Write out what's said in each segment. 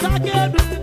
Zagueiro.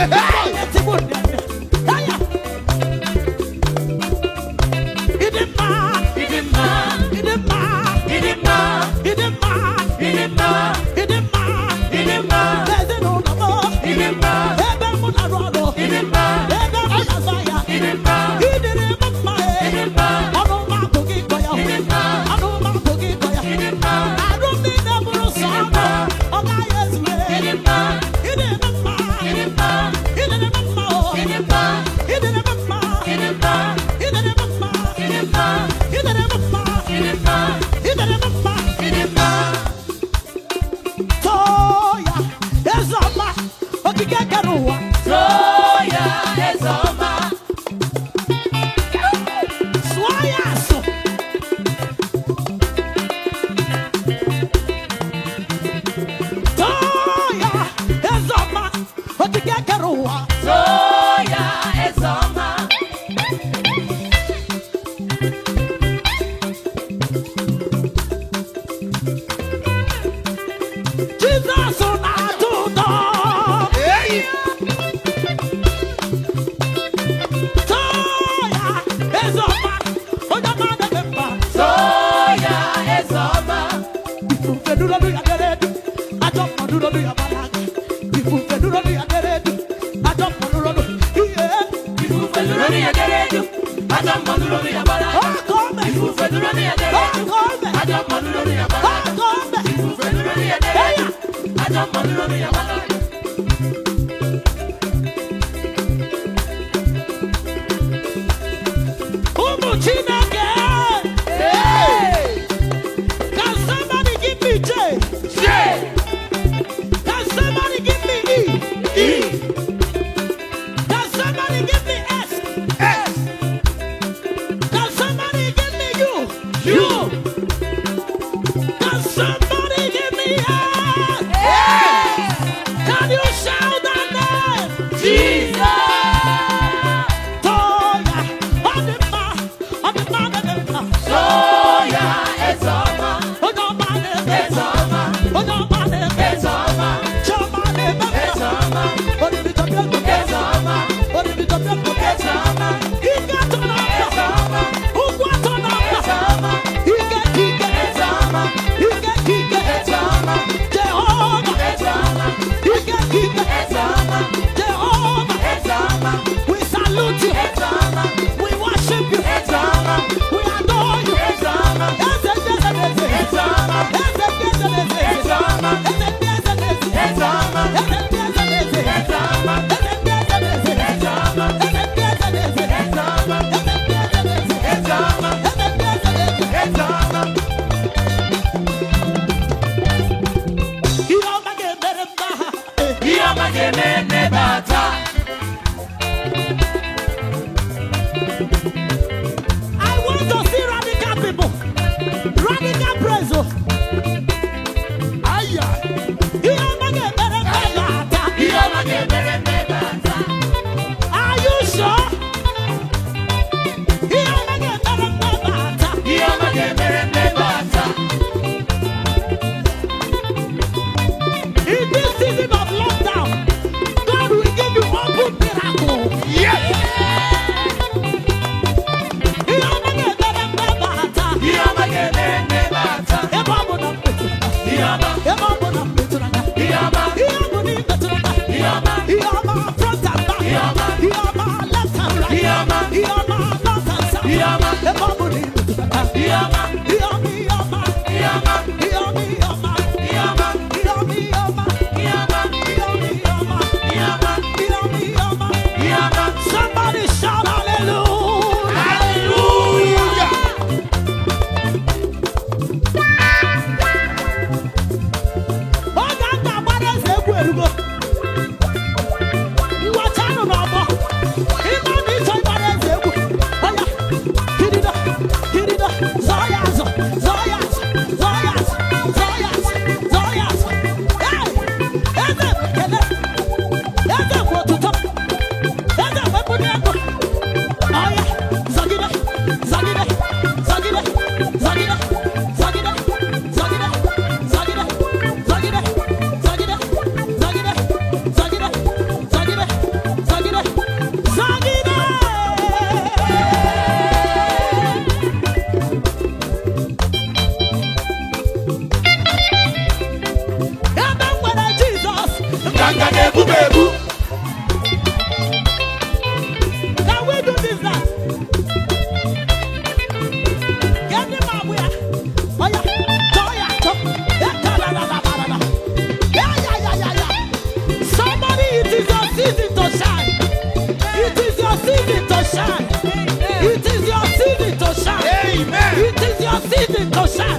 Ah! Kakarua. Soya is on lórí ẹ̀dẹ́rẹ́ jù Yama, Yama, Yama, Yama, deciden gozar.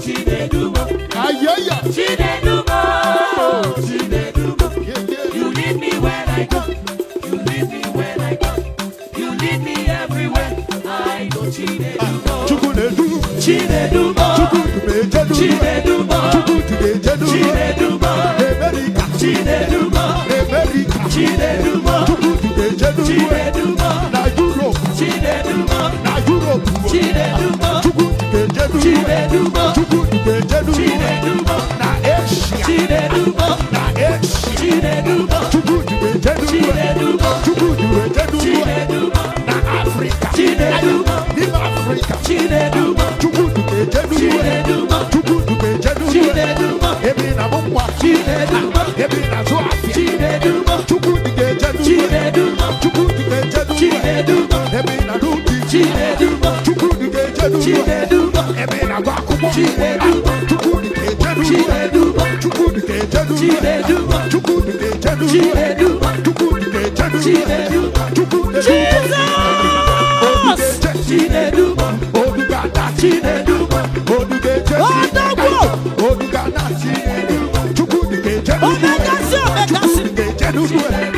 Chinedumo. Ayaya. Chinedumo. Chinedumo. You lead me when I go. You me everywhere. I go Chinedumo. Chinedumo. Na Europe. Chinedubo Chukwu Dube Jedubo Chinedubo na Asia Chinedubo na Asia Chinedubo Chukwu Dube na Africa Chinedubo Nim Africa Chinedubo Chukwu Dube Jedubo Chinedubo Chukwu Dube Jedubo Chinedubo Ebi na Mumwa Ebi Ebi agụ akwụkwọ chukwudị ga-ejedu chukwudị ga-ejedu chukwudị ga-ejedu chukwudị ga-ejedu chukwudị ga-ejedu obi ga-ada chinedu obi ga-ejedu obi ga-ada chinedu chukwudị ga-ejedu chukwudị ejedu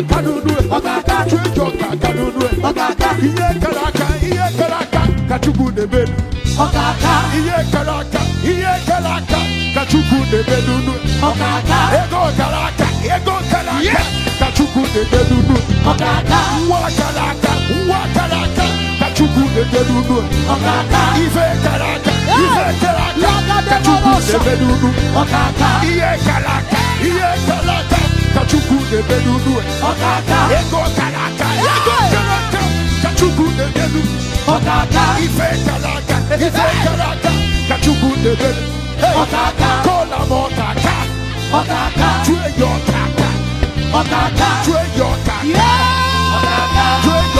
aka n'unu ọkaka ka aka ọkaka ihe kala aka ihe aka kachukwu chukwu ọkaka ihe aka ihe kara aka ka nebe na ọkaka ego kara aka ego kala aka kachukwu chukwu na ọkaka nwa kara aka nwa kara aka ka ọkaka ife aka ife aka ọkaka ihe kara aka ihe kara aka Kachukwu Chukwu na-eme n'ulu ego kara aka ego kara aka ka Chukwu na-eme n'ulu ife kara aka ife kara aka ka Chukwu na-eme n'ulu kọla m ọkaka chue ya ọkaka chue ya ọkaka chue ya